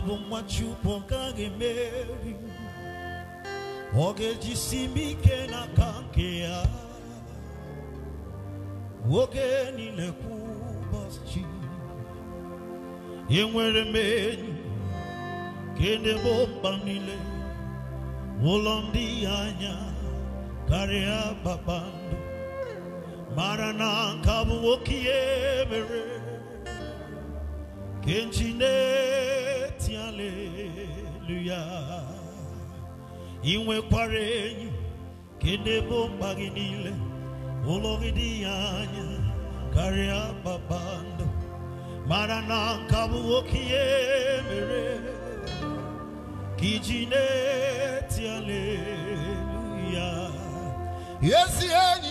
ọ bụ nwa Chukwu ọ gaghị emeri o simi ga-ejisi m ike n'aka nke ya oge niile kwa ụbọchị enwere m enyi kenebe mba niile ụlọ ndị ya anya karịa kpakpando mara na nka bụ nwoke ya emere kenji na dit Alléluia. Iwe kwarenyu kende bombaginile oloridianya karia babando marana kabuokie mere kijine ti Alléluia. Yes, yes,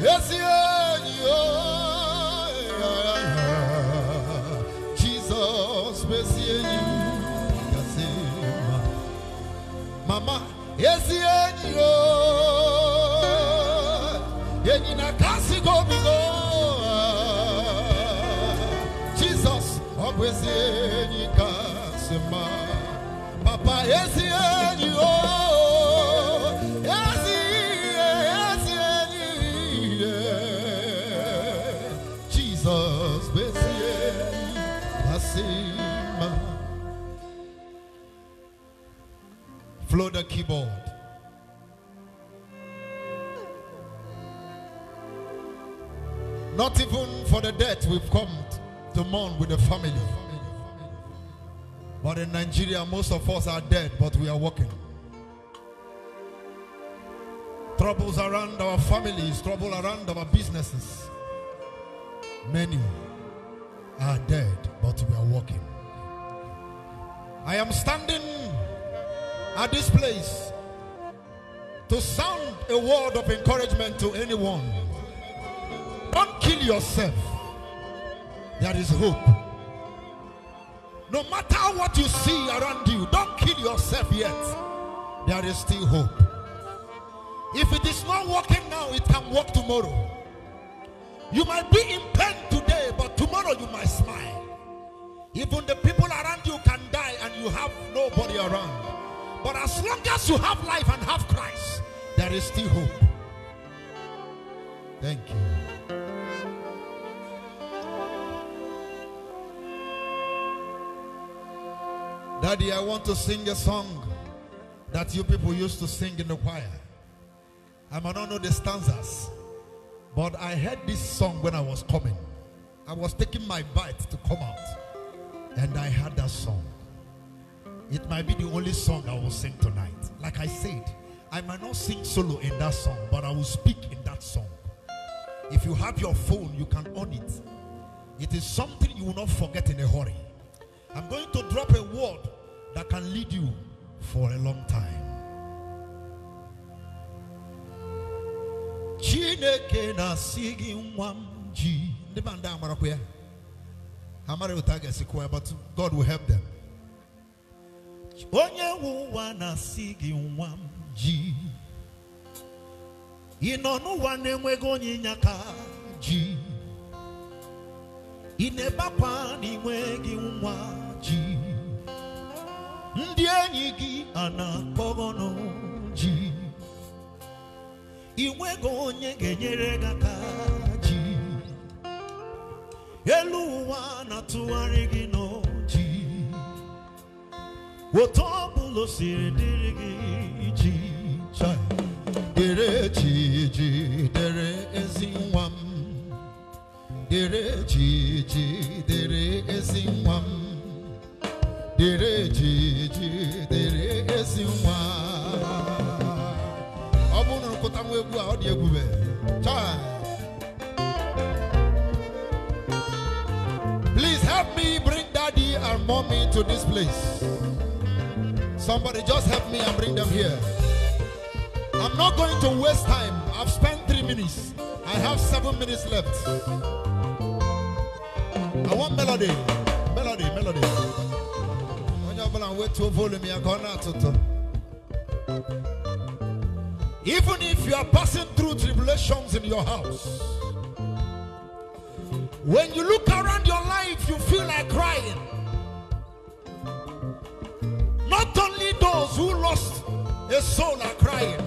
yes, yes, yesi kasi jesus ọ bụ ezi keyboard. Not even for the dead we've come to mourn with the family. But in Nigeria, most of us are dead, but we are working. Troubles around our families, trouble around our businesses. Many are dead, but we are working. I am standing at this place to sound a word of encouragement to anyone. Don't kill yourself. There is hope. No matter what you see around you, don't kill yourself yet. There is still hope. If it is not working now, it can work tomorrow. You might be in pain today, but tomorrow you might smile. Even the people around you can die and you have nobody around. But as long as you have life and have Christ, there is still hope. Thank you. Daddy, I want to sing a song that you people used to sing in the choir. I might not know the stanzas, but I heard this song when I was coming. I was taking my bite to come out, and I heard that song. It might be the only song I will sing tonight. Like I said, I might not sing solo in that song, but I will speak in that song. If you have your phone, you can own it. It is something you will not forget in a hurry. I'm going to drop a word that can lead you for a long time. Chineke na sigi mwamji. ji. Ndị banda amara kwa Amara ụta but God will help them. onye nwe ụwa na-asị gị nwa m ji ị nọ n'ụwa na-enweghị onye ịnyaka ji ị na-ebekwa n'inweghị gị nwa ji ndị enyi gị a na-akpọghọnụ ji ị nweghị onye ga-enyere gị aka ji elu ụwa na-atụgharị gị Please help me bring daddy and mommy to this place. Somebody just help me and bring them here. I'm not going to waste time. I've spent three minutes. I have seven minutes left. I want melody. Melody, melody. Even if you are passing through tribulations in your house, when you look around your life, you feel like crying only those who lost a soul are crying.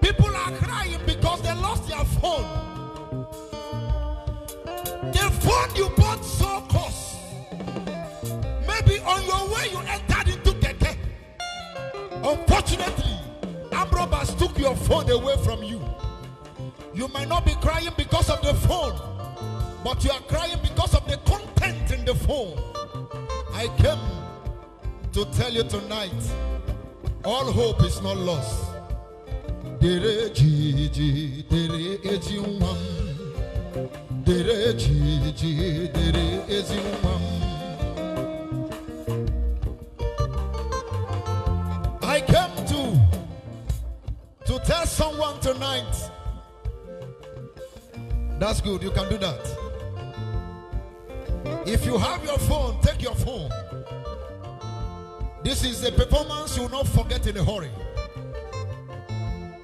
People are crying because they lost their phone. The phone you bought so cost. Maybe on your way you entered into Keke. Unfortunately, Ambrobas took your phone away from you. You might not be crying because of the phone, but you are crying because of the content in the phone. I came to tell you tonight all hope is not lost. Dere Dere Dere Dere I came to to tell someone tonight. That's good, you can do that. If you have your phone, take your phone. This is a performance you will not forget in a hurry.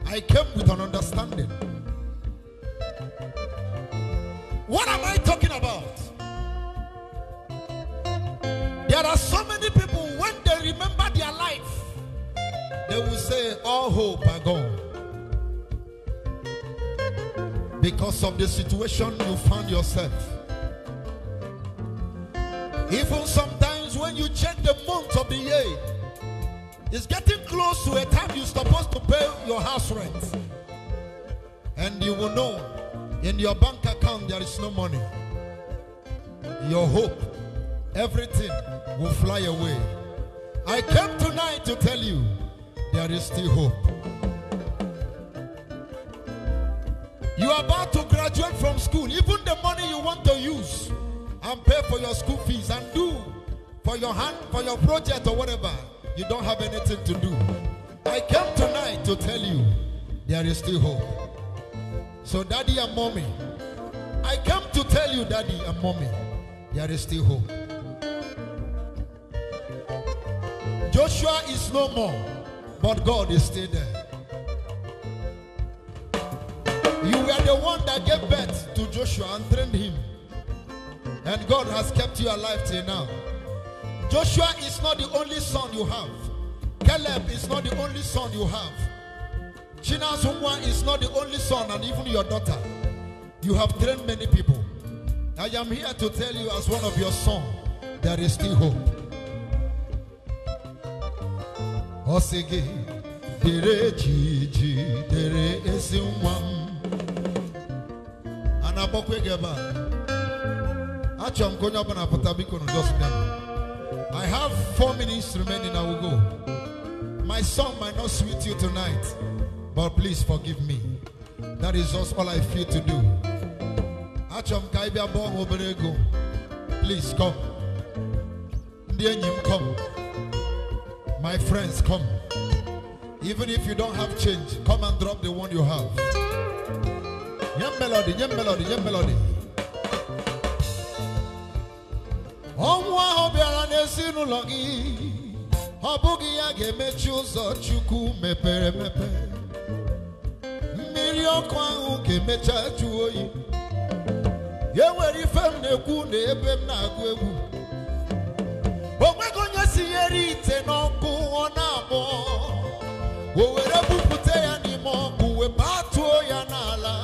I came with an understanding. What am I talking about? There are so many people when they remember their life, they will say, All hope are gone. Because of the situation you found yourself. Even some when you check the months of the year. It's getting close to a time you're supposed to pay your house rent. And you will know in your bank account there is no money. Your hope, everything will fly away. I came tonight to tell you there is still hope. You are about to graduate from school. Even the money you want to use and pay for your school fees and do for your hand, for your project or whatever, you don't have anything to do. I came tonight to tell you there is still hope. So, daddy and mommy, I came to tell you, daddy and mommy, there is still hope. Joshua is no more, but God is still there. You were the one that gave birth to Joshua and trained him. And God has kept you alive till now. Joshua is not the only son you have. Caleb is not the only son you have. Chinasumwa is not the only son and even your daughter. You have trained many people. I am here to tell you as one of your son, there is still hope. Osigi dere jiji dere ezi nwa m a na-akpọkwa gị ebe a achọrọ I have four minutes remaining. I will go. My song might not suit you tonight, but please forgive me. That is just all I feel to do. Achọm ka ịbịa bụọ Please come. Ndị come. My friends come. Even if you don't have change, come and drop the one you have. Yem melody, yem melody, yem melody. ọnwụ ahụ bịara n'ezinụlọ gị ọ bụghị ya ga-emechi ụzọ Chukwu mepere emepe mmiri ọkụ ahụ ga-emecha jụ oyi enwere ife m na-ekwu na ebe m na-agụ egwu o nweghị onye sinyere ite n'ọkụ ọ na-agbọ o were bupụta ya n'ime ọkụ batuo ya n'ala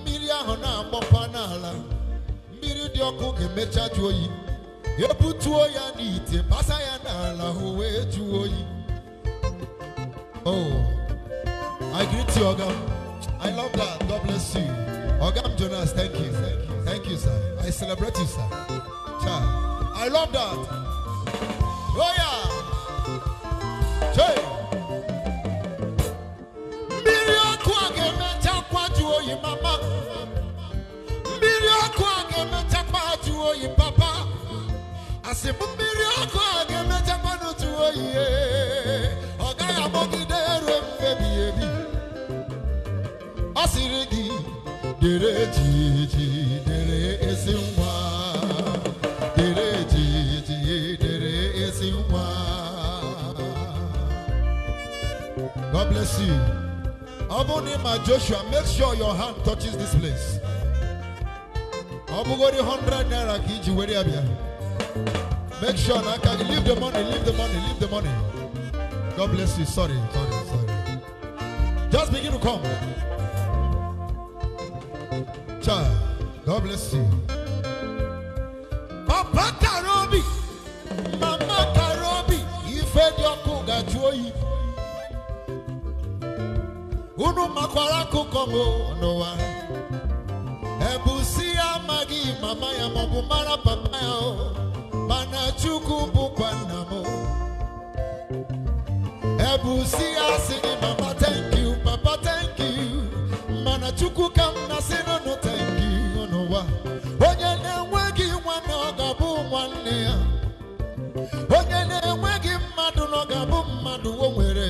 mmiri ahụ na-agbọkwa n'ala mmiri dị ọkụ ga-emecha jụ oyi ebutuo ya n'ite basa ya n'ala o jụọ oyi oh i greet you oga i love that god bless you oga jonas thank you thank you thank you sir i celebrate you sir cha i love that oh yeah. Hey! dere jiji dere esi nwa dere jiji dere esi nwa God bless you Obunima Joshua make sure your hand touches this place Abugori hundred naira kiji iji were ya make sure na can leave the money leave the money leave the money God bless you sorry sorry sorry just begin to come. mercy. Papa Karobi, Mama Karobi, ife dị ọkụ gaji oyi. Unu makwara no m n'ụwa. Ebusi ya magi, mama ya maọbụ papa ya o. Mana Chukwu bụkwa nna Ebusi ya mama thank you, papa thank you. Mana Chukwu ka m na sị no thank you. onye na-enweghị ọ ga-abụ nwanne ya onye na-enweghị mmadụ na mmadụ o nwere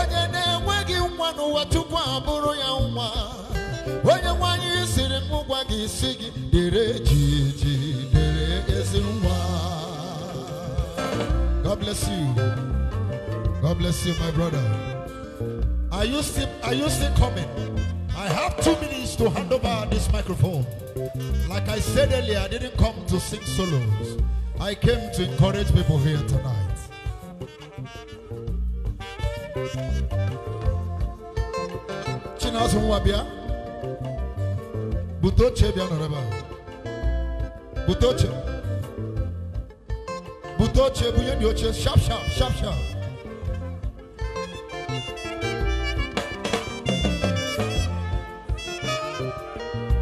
onye na-enweghị nwa n'ụwa tupu abụrụ ya nwa onye nwanyị siri m gwa gị isi gị dere jiji dere ezi nwa God bless you God bless you my brother are you still, are you still coming I have two minutes to hand over this microphone. Like I said earlier, I didn't come to sing solos. I came to encourage people here tonight. Chinasu Butoche Bianoraba. Butoche. Butoche Buyenyoche. Sharp, sharp, sharp, sharp.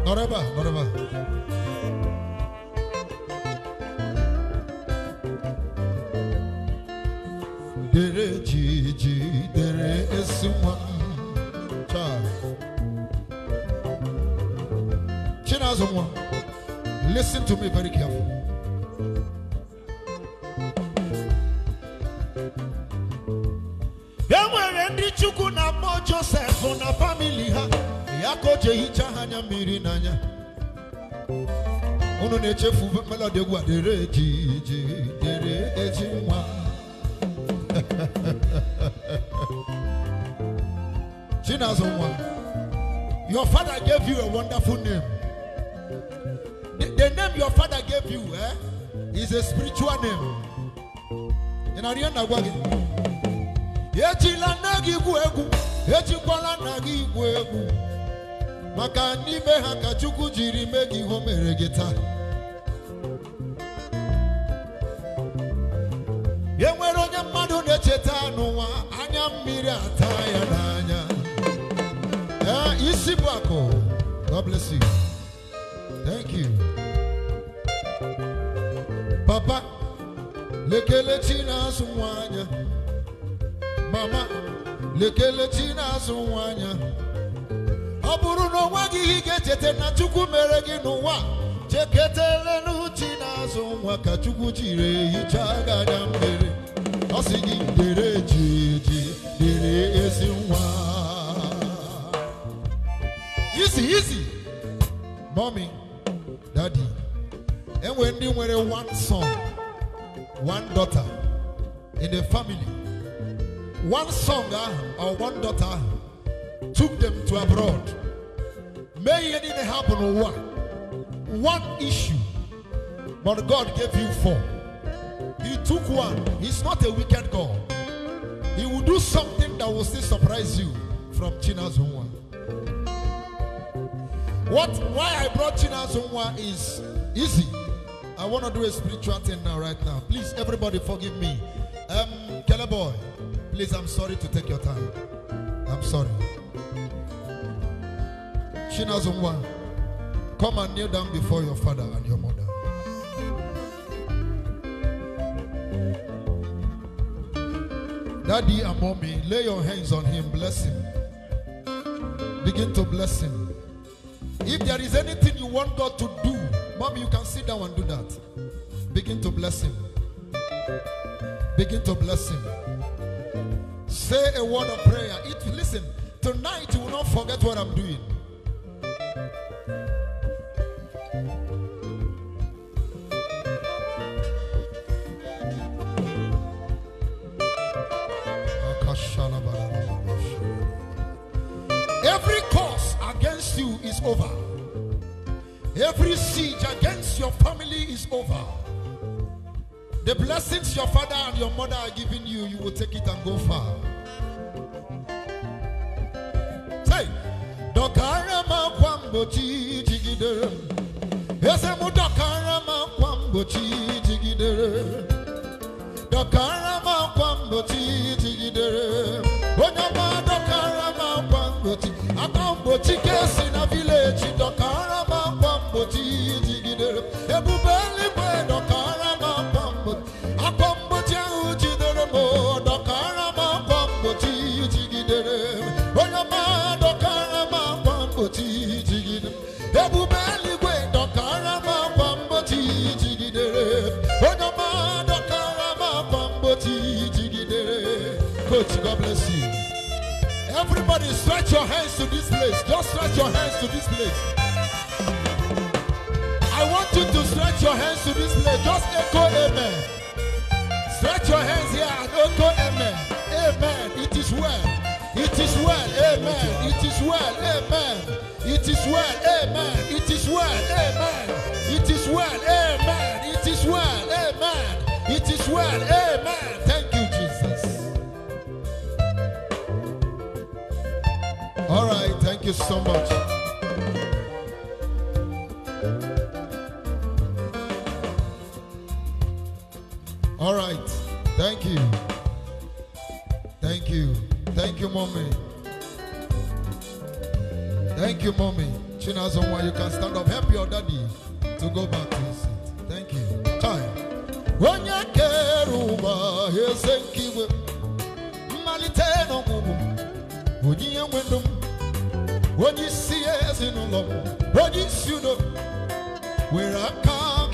Noraba, Noraba. Dere Gigi, Dere child. listen to me very carefully. Enwere ndị Chukwu na na ha, ya ka anya mmiri n'anya unu na-echefu melodi egwu a dere ejiji dere eji nwa Chinazụ nwa your father gave you a wonderful name the, the name your father gave you eh, is a spiritual name ị na na gwa gị ejila nna gị egwu ejikwala nna gị igwu egwu maka n'ime ha ka Chukwu jiri mee gị ihe o mere gị taa e nwere onye mmadụ na-echeta n'ụwa anya mmiri ata ya n'anya e, isi bụ akụ God bless you thank you papa lekelechi na-azụ nwa anya mama lekelechi na-azụ nwa anya ọ bụrụ na o nweghị ihe ị ga-echeta na chukwu mere gị n'ụwa cheketele n'uchi n'azụ nwa ka chukwu jiri hichaa gị anya ọ sị gị dere jiji dere ezi nwa izi izi mọmi dadi enwe ndị nwere one son one daughter in the family one song ahụ or one daughter ahụ took them to abroad. May it didn't happen one. One issue. But God gave you four. He took one. He's not a wicked God. He will do something that will still surprise you from China's one. What why I brought China's one is easy. I want to do a spiritual thing now, right now. Please, everybody, forgive me. Um, Keller boy, please, I'm sorry to take your time. I'm sorry. Chinazongwa, come and kneel down before your father and your mother. Daddy and mommy, lay your hands on him, bless him. Begin to bless him. If there is anything you want God to do, mommy, you can sit down and do that. Begin to bless him. Begin to bless him. Say a word of prayer. It, listen, tonight you will not forget what I'm doing. Every siege against your family is over. The blessings your father and your mother are giving you, you will take it and go far. Say, Dokarama dokarama Dokarama Onyama dokarama Somebody stretch your hands to this place. Just stretch your hands to this place. I want you to stretch your hands to this place. Just echo amen. Stretch your hands here and echo amen. Amen. It is well. It is well. Amen. It is well. Amen. It is well. Amen. It is well. Amen. It is well. Amen. It is well. Amen. It is well. Amen. you so much. All right. Thank you. Thank you. Thank you, mommy. Thank you, mommy. Chinazonwa, you can stand up. Help your daddy to go back to his seat. Thank you. Time. When you care over, Malite no When you when you see us in love, when you see no, we're a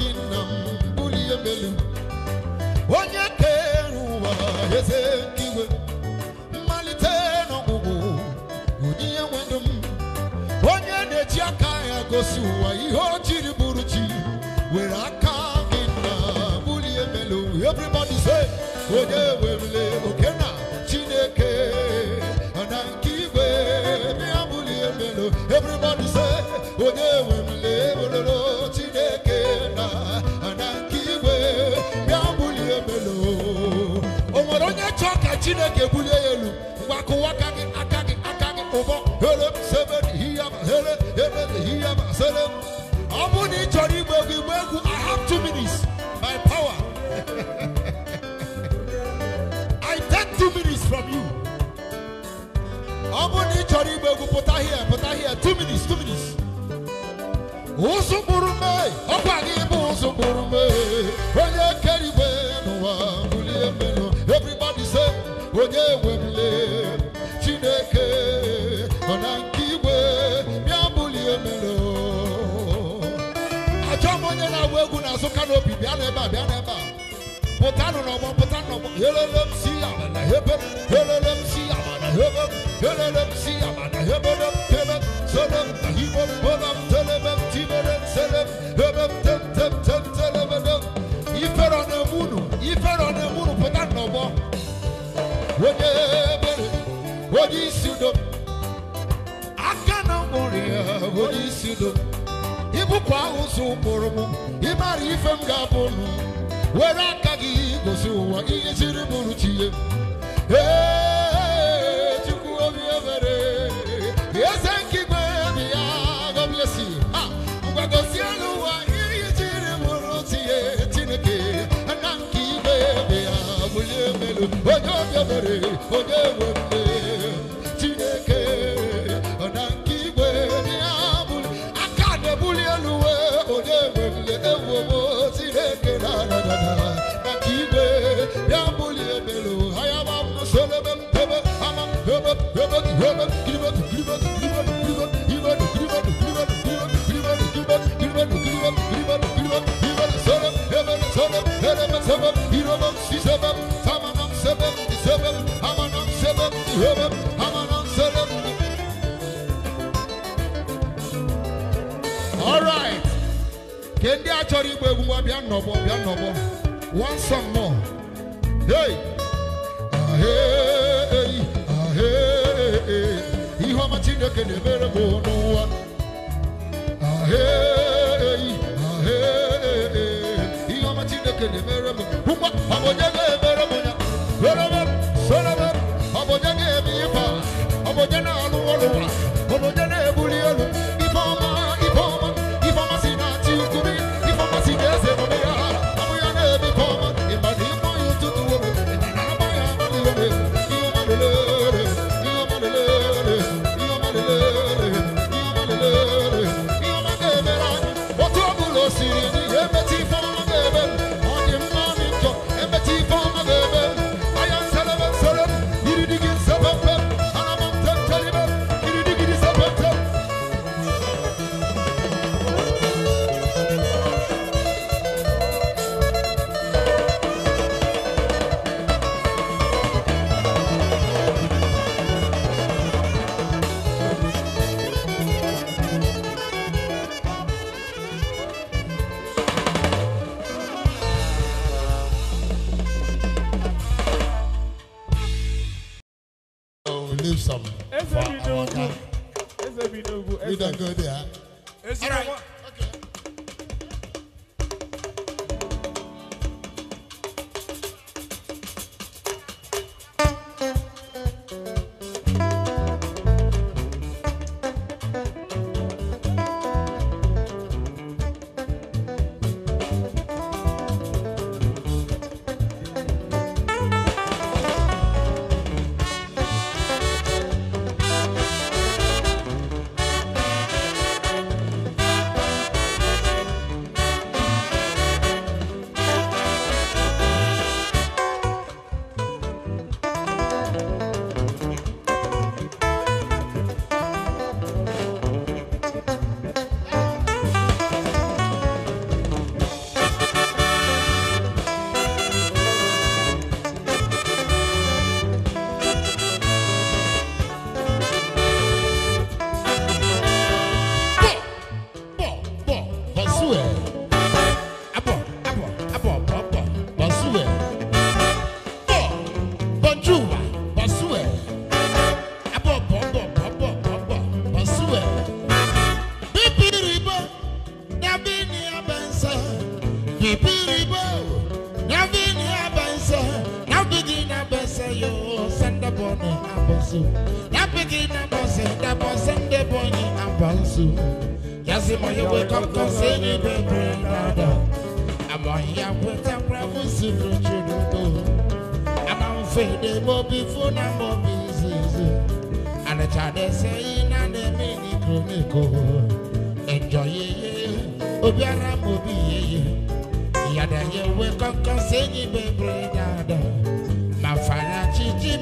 in a bully a billion. When you care, who is it? Malite no go, you're the Jakaya goes, who are you? Buruchi, we're a in a bully a billion. Everybody say, whatever. Oh, chineke ebulie ya elu ngwa kụwa gị aka gị aka gị ụbọ here sebe ihe here here ihe sele ọ bụrụ na ị chọrọ igba egwu igba egwu i have two minutes My power i take two minutes from you ọ bụrụ na ị chọrọ igba egwu pụta here pụta here two minutes two minutes ụzụ kpụrụ mee ọkwa gị bụ ụzụ kpụrụ mee onye kere igwe n'ụwa bulie mmeri onye wemle chineke nọ na nke igwe bịa na a bịa n'ebe a helele hebe helele hebe helele na hebe Wodebere, wodi sudo. Akana moria, wodi sudo. Ibu kwa usu moromo, imari ifem Wera kagi gosuwa, iye siri muruchiye. Hey! onye obi na na na onye achọrọ igba egwu nwa bịa nnọbọ bịa nnọbọ one song more hey ahee ahee ihe ọma chineke na-emere m n'ụwa ahee ahee ihe ọma chineke na-emere m ngwa ọ boni abonso na pigi na bonse na bonse nde boni abonso yasi mo yewe koko se ni bebe dada amo ya kweta kwa fusi fuchi duto ama mfede bobi funa bobi zizi ana chade se ina ne mini kroniko enjoy ye obiara mobi ye ye yada yewe koko se ni bebe dada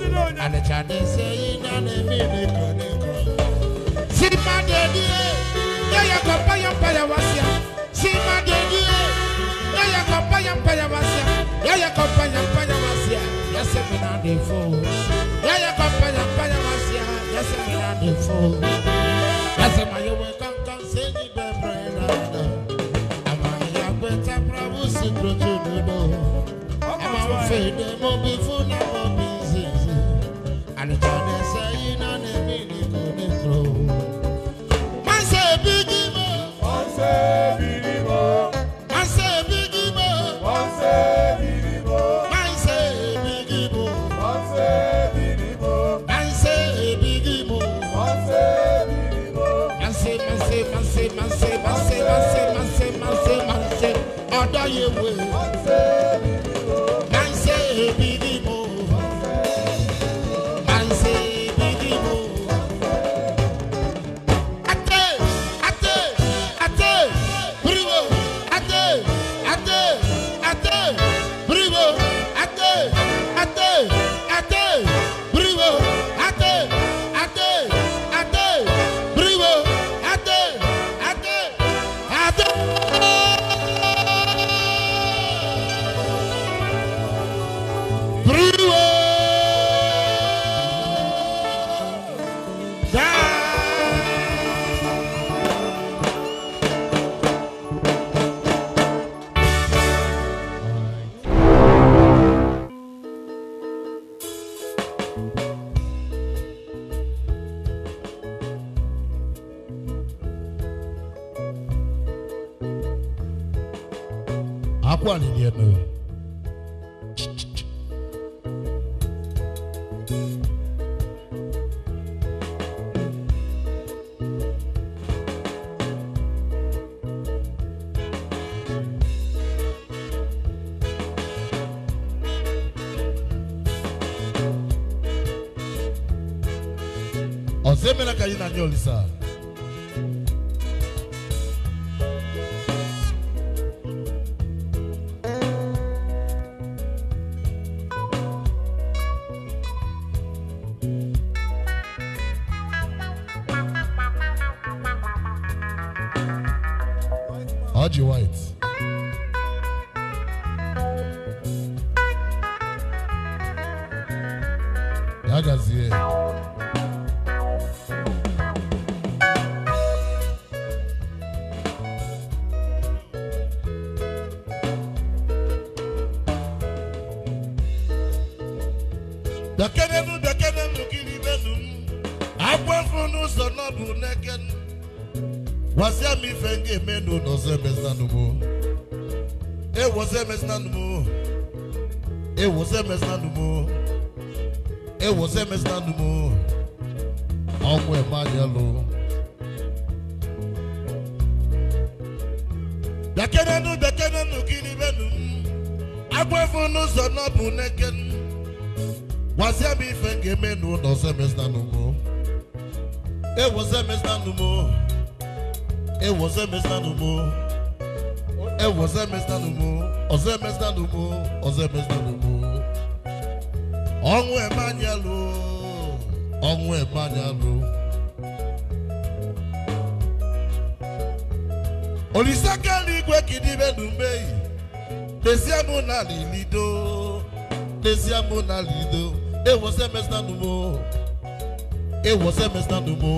And the Chinese say, in an immediate chronicle. See my daddy, there you go, pay pay was See my daddy, there you go, pay pay was here. There you go, pay pay was here. Yes, I'm pay Yes, I'm Yes, I'm Daniel How do you white? ewo sɛ mɛsena no mu ewo sɛ mɛsena no mu ɔmo ɛma yɛ lo. Dakenanu dakenanu kiri benu agbẹfunu sọnà bu nẹkẹnu wàsíà mi fẹ kẹmẹnu nọ sẹmẹsítà numu ewo sẹmẹsítà numu ewo sẹmẹsítà numu ewo sẹmẹsítà numu ọsẹmẹsítà numu ọsẹmẹsítà numu ọnwụ emanyelụ ọnwụ emanyelụ olise ka eluigwe ka ịdịbe n'umeyi lezie mụ na lilido lezie mụ na lido ewose mesanu numo ewose mesina numo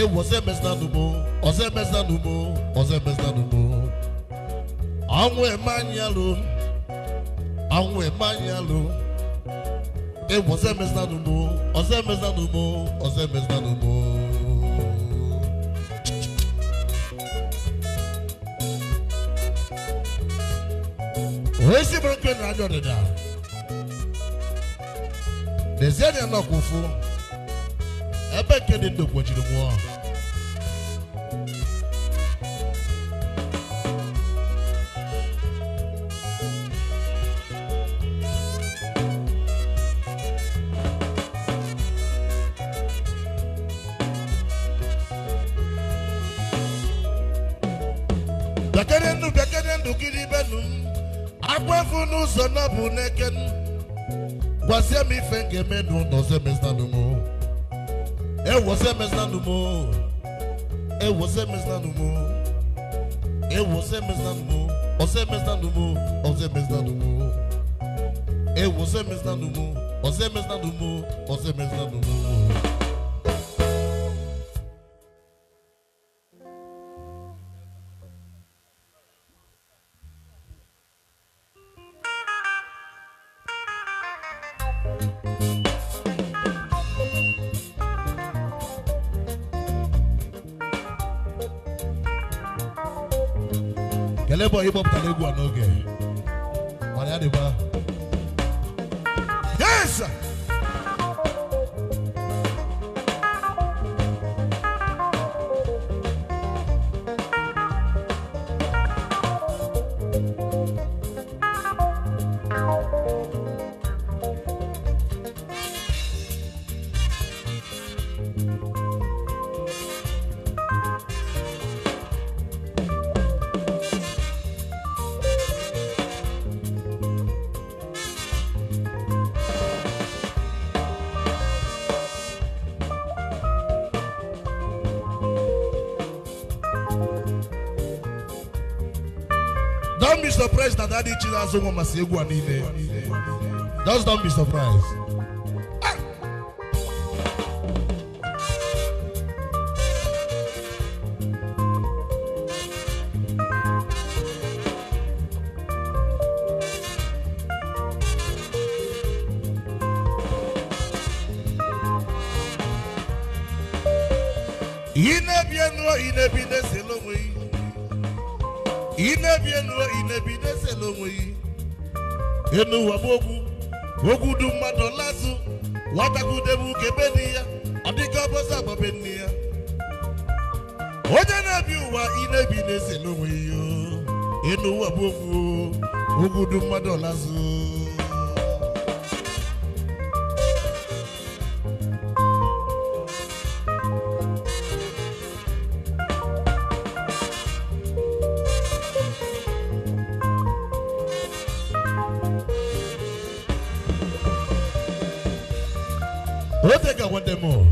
ewose mesina numo ọsẹ mesina numo ọsẹ mesina numo ọnwụ emanyelụ ọnwụ emanyelụ ewu ọsẹ mẹsàn án mo ọsẹ mẹsàn án mo ọsẹ mẹsàn án mo. oesi mọ nkiri na adọ deda dezie ni ẹ nọ kò fún ẹ bẹ nkiri ndokwo jiri mu ọ. bekere ndụ bekere ndụ gịrị benu m akwafu n'ụzọ na bụ n'eke m gwazie m ife ga-eme n'ụlọ zemeznanụ m ewozemeznanụ m ewozemeznanụ m ewozemeznanụ m ozemeznanụ m ozemeznanụ m ewozemeznanụ m ozemeznanụ m ozemeznanụ m surprised that that Jesus woman say go Just don't be surprised. ihe n'ụwa m okwu okwu du mmadụ ọlazụ nwatakwudebe uke ebe dị ya ọ dịka ọbọzọ agbabe nne ya onye na-ebi ụwa ị na-ebi na-ese n'onwe ya enu ụwa okwu okwu mmadụ ọlazụ mismo. Hm.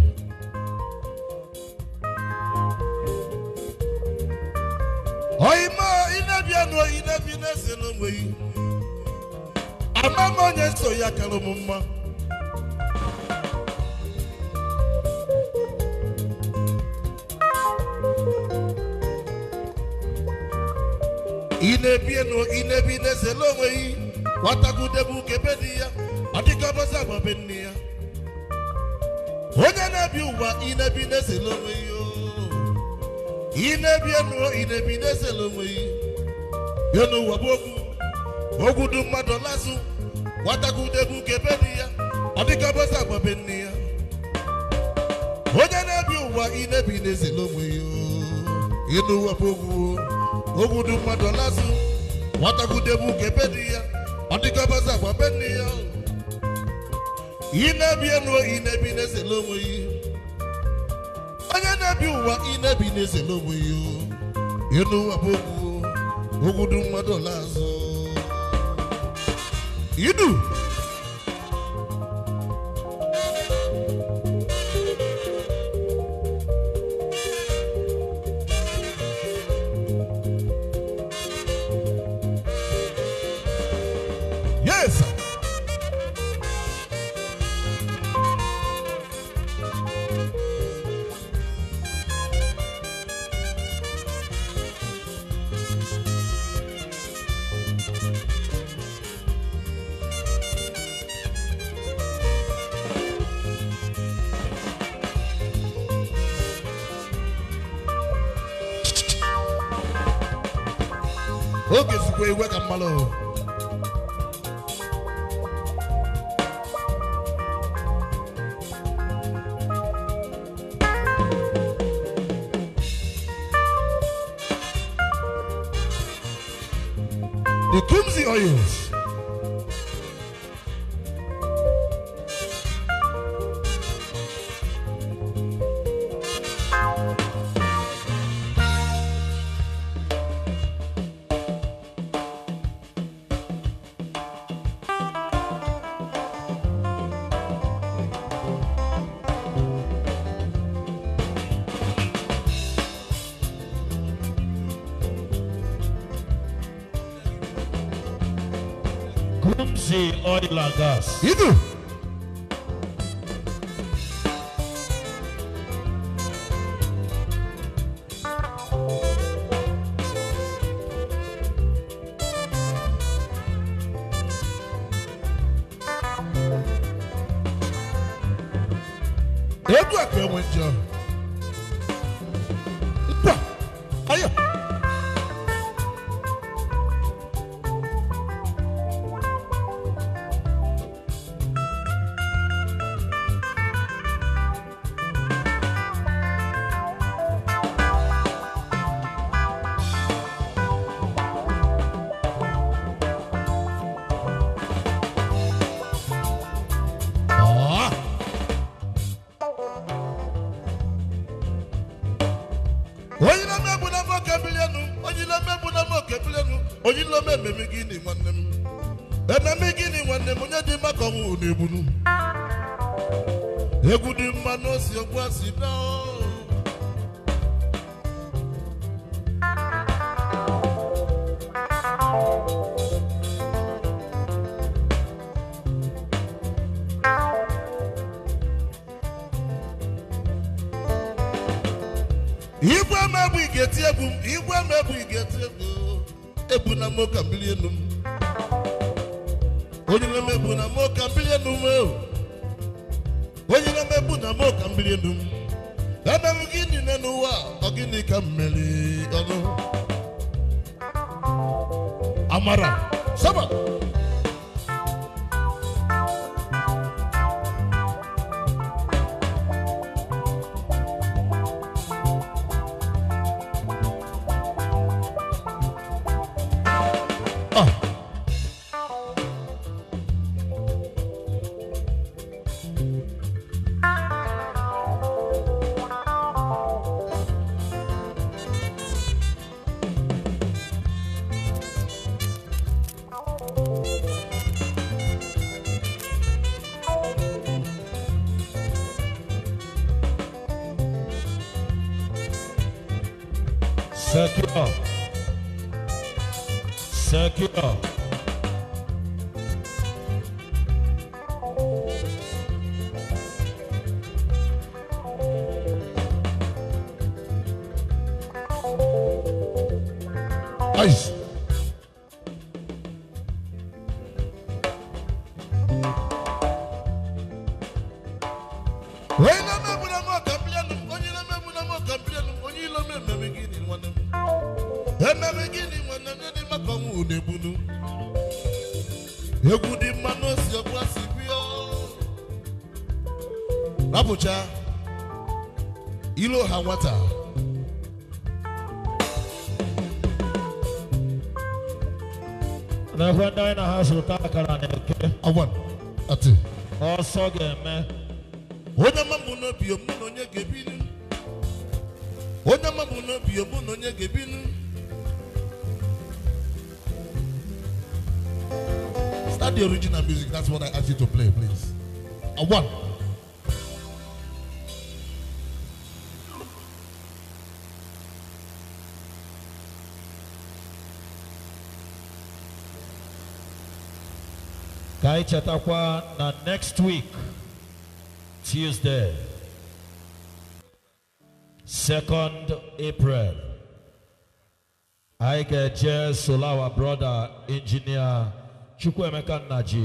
oima inebia nụ oyi nebi na-ese yi ama m onye nso ya kara m mma inebie nụ inebi na-ese n'onwe yi nwatagudebe ukebe di ya ọ dịka ọbọsị be nne ya inebi na-esele onwe ya inebi na-esele onwe ya bịa n'ụwa bụ mmadụ nwatakwudebu onye na-ebi ụwa inebi na-esele onwe ya ịnụ ụwa bụ ogwu ogwu mmadụ nwatakwudebu ya ọ dịka agbabe ya inebi na-esele onwe ya You do. i Go tumzi oils. oil akọnwụ n'ebunu egwu dị mma n'osi ogbu asi dọọ ọdún amara sábà. na-egbunu egwu dị mma n'osi ọgbụla si bịa rapụcha ilo ha nwata Na-ekwe ndị anyị na ha zụta akara na-eke ọsọ ga-eme onye ama mụ n'obi mụ na onye ga-ebinu onye ama mụ n'obi mụ na onye ga-ebinu not the original music. That's what I asked you to play, please. A one. Kai Chatakwa na next week, Tuesday, 2nd April. I get Jess Solawa brother engineer Chukwuemeka Nnaji